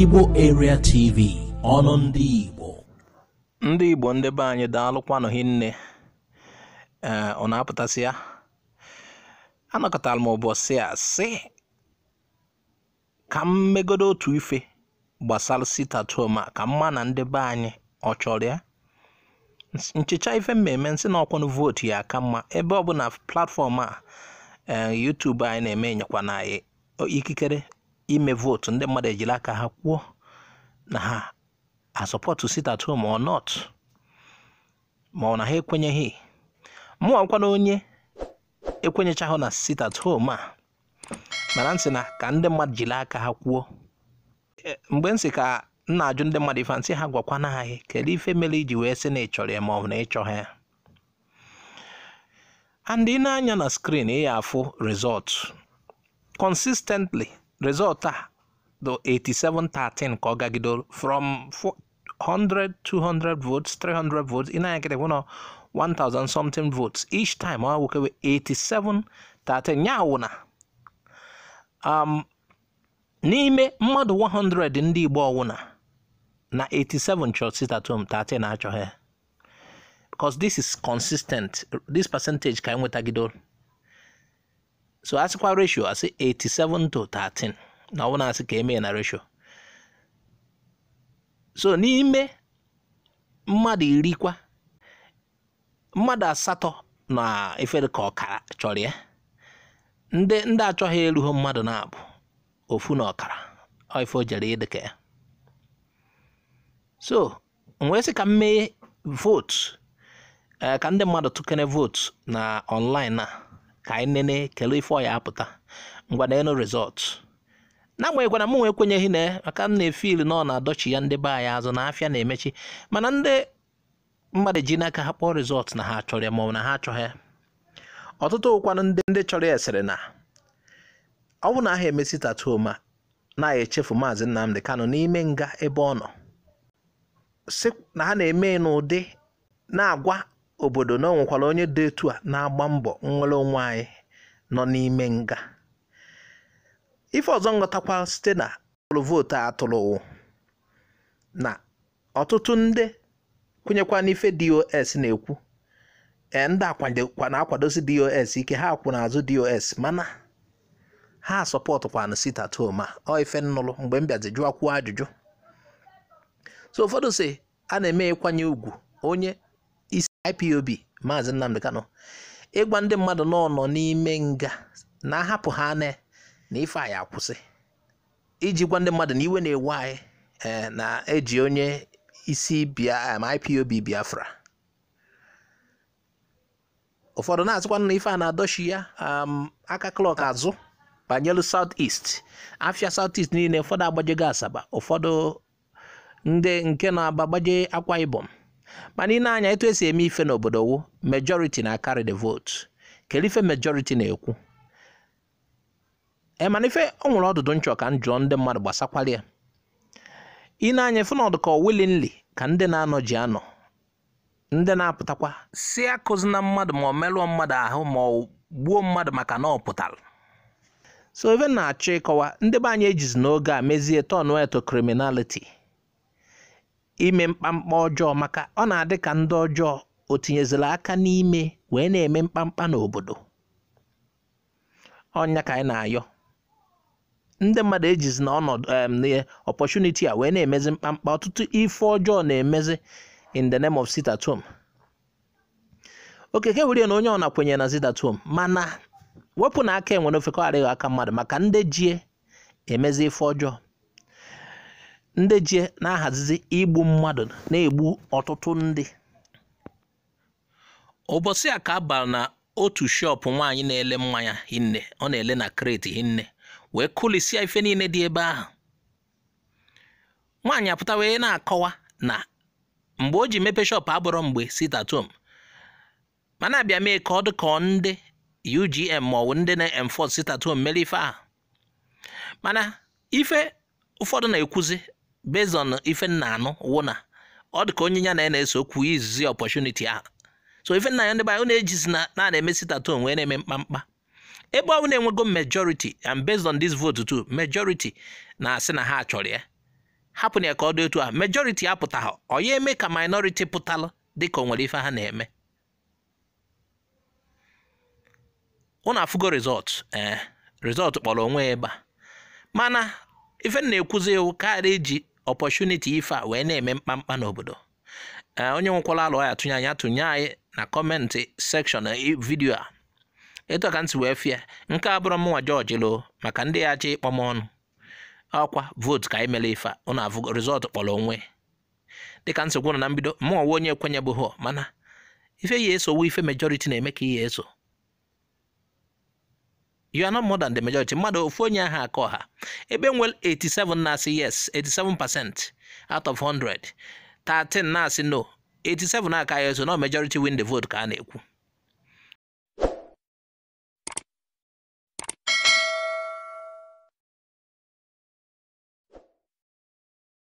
Igbo Area TV ọnụ ndị Igbo ndị Igbo ndị be anyị daalụkwanụ hinne ee ọ na-apụtasị ya anọkọtara m ụbọchị a sị ka m megodo otu ife gbasara sitatoma ka mma na ndị be anyị ọ chọrọ ya nchicha ife mmemme nsị na ọkwanụ vootu ya ka mma ebe ọ bụ na platfọm a e, YouTube anyị na-eme nyekwana ikikere ime vootu ndị mmadụ ejiri aka ha kwuo na ha asọpọtụ sit at home or not ma ọ na ha ekwenyeghị mụọ nkwana onye ekwenyechahụ na sit at home a mara nsị na ka ndị mmadụ jiri aka ha kwuo mgbe nsị ka nna ajụ ndị mmadụ ife ha gwakwana anyị kedu ife mere iji wee sị na ị chọrọ ya ma ọ bụ na ị ha ya andị ị na-anya na skrin ị ya afụ rizọtụ consistently resọtụ a 87 8713 ka ọ gagidoro from 100 200 votes 300 votes ị na-agịdị na 1000 something votes each time ọ wụkewe 8713 ya wụ na um, n'ime mmadụ 100 ndị Igbo ọwụna na 87 home 13 achọghị because this is consistent this percentage ka enwetagidoro so asịkwa ratio asị 87 to 13 na ọ na-asị ka emee na ratio so n'ime mmadụ iri mmadụ asatọ na efere ka ọkara chọrọ ya ndị ndị achọghị erughị mmadụ na-abụ ofu na ọkara ife ojere ịdịka ya so wee sị ka mmeghe vote eh, ka ndị mmadụ tụkere vote na online a ka anyị nene kelee ife ọya apụta ngwa na enu rizọt na-agbanyeghị na m nwe ekwenyeghị na maka m na-efili na ọ na-adọchi ya ndị be anyị azụ na afịa na-emechi mana ndị mmadụ ji n'aka ha kpọọ rizọt na ha chọrọ ya maọbụ na ha achọghị ya ọtụtụ ụkwanụ ndị ndị chọrọ ya sịrị na ọ bụ na aha emesi tatuo ma na echefu maazị Nnamdi kano n'ime nga ebe ọ nọ si na ha na-eme n'ụdị na-agwa obodo na ọ onye dị etu a na-agba mbọ nnwere onwe anyị nọ n'ime nga ife ọzọ nghọtakwa site na ọrụ vootu a tụrụ na ọtụtụ ndị kwenyekwa n'ife dos na-ekwu e, ndị na-akwadosi dos ike ha akwụ n'azụ dos mana ha sọpọtụkwana sita toma ọ ife mgbe m bịazi jụọ kwuo ajụjụ so ụfọdụ si a na-eme ịkwanye ugwu onye IPOB Maazị Nnamdi Kanu ịgwa ndị mmadụ nọ n'ime nga na ahapụ ha na na ife anyị akwụsị iji gwa ndị mmadụ na iwe na-ewe anyị eh, na-eji onye isi IPOB Biafra ụfọdụ na-asịkwanụ na ife a na-adọchi ya um, aka klọk azụ banyelu South est afia South East niile ụfọdụ agbajego Asaba ụfọdụ ndị nke na-aba gbaje Akwa Ibom mana ị na-anya etu esi eme ife n'obodo wụ majority na carry the vote kedu ife majority na-ekwu emana eh, ife ọ nwere ọdụdụ nchọ ka m jụọ ndị mmadụ gbasakwara ya ị na-anya ife n'ọdụ ka willingly ka ndị na-anọ ji anọ ndị na-apụtakwa si akụzi na mmadụ ma ọ merụọ mmadụ ahụ ma ọ gbuo mmadụ maka na ọ pụtara so even na-achọ ịkọwa ndị be anyị ejizi n'oge a mezie tọnụ eto criminality ime mkpamkpa ọjọọ maka ọ na-adị ka ndị ọjọọ o tinyezila aka n'ime wee na-eme mkpamkpa n'obodo ọnya ka anyị na-ayọ ndị mmadụ ejizi na ọnọdụ opportunity a wee na-emezi mkpamkpa ọtụtụ ife ọjọọ na-emezi in the name of sit at okeke were na onye ọ na na sit mana wepụ na aka enwere ofekọ adịghị aka mmadụ maka ndị jie emezi ife ọjọọ ndị ji na-ahazizi igbu mmadụ na-egbu ọtụtụ ndị ụbọchị a ka a na otu shop nwaanyị na-ele mmanya hinne ọ na-ele na kreti hinne wee kụlisia ife niile dị ebe ahụ nwaanyị apụta wee na-akọwa na mgbe o ji mepe shop abụrọ mgbe sitatom mana abịa mee ka ọ dị ka ndị UGM ndị na-enforce sit mere ife ahụ mana ife ụfọdụ na-ekwuzi based on ife nna anụ wụna ọ dị ka onye ya na eso okwu izizi opportunity ahụ so ife nna ya ndị banyị na-ejizi na na-emesi tato wee na-eme mkpamkpa ebe ọ na-enwego majority and based on this vote too majority na-asị na ha chọrọ ya hapụna ya ka ọ dị otu a majority apụtaghị ọ ya eme ka minority pụtalụ dị ka o nwere ife ha na-eme ụnụ afụgo rizọt ee eh, resọt kpọrọ onwe ya ebe a mana ife na-ekwuzi ewu karịa eji ọpọchuniti ife a wee na-eme mkpamkpa n'obodo eh, onye nwekwala alụ ya tụnye anyị atụnye anyị na kọmentị sekshọn eh, vidiyo a etu ka ntị wee fie nke a bụrụ mụnwa jọji lụ maka ndị ya achọ ịkpọ m ọnụ ọkwa votu ka anyị mere ife a ụnụ avụgo rizọtụ kpọrọ onwe dịka ntị nọ na mbido mụnwa nwe onye ekwenyebeghị mana ife ya esowo ife mejọriti na-eme ka ihe eso you are not more than the majority mmadụ ofu onye ahụ akọ ha ebe nwere 87 na-asị yes 87 percent out of 100 13 na-asị no 87 aka ya so na majority win the vote ka a na-ekwu